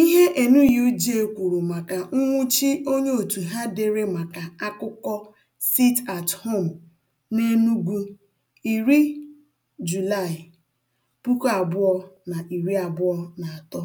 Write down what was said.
Ihe Enuyuche kwuru maka nnwụchi onye otu ha dere maka akụkọ Sit at Home n'Enugwu, iri Julaị, puku abụọ na iri abụọ na atọ.